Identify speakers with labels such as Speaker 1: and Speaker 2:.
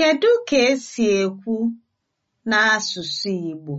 Speaker 1: Kedu ka esi ekwu n'asụsụ Igbo?